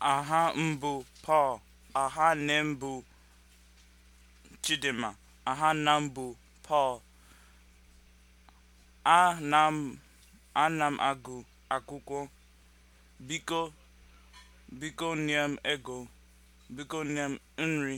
aha mbụ Paul aha nne m bụ Chidinma aha nna m bụ Paul ana m ana m agụ akwụkwọ biko biko nye m ego biko nye m nri